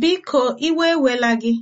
Biko, iwe ewela gị.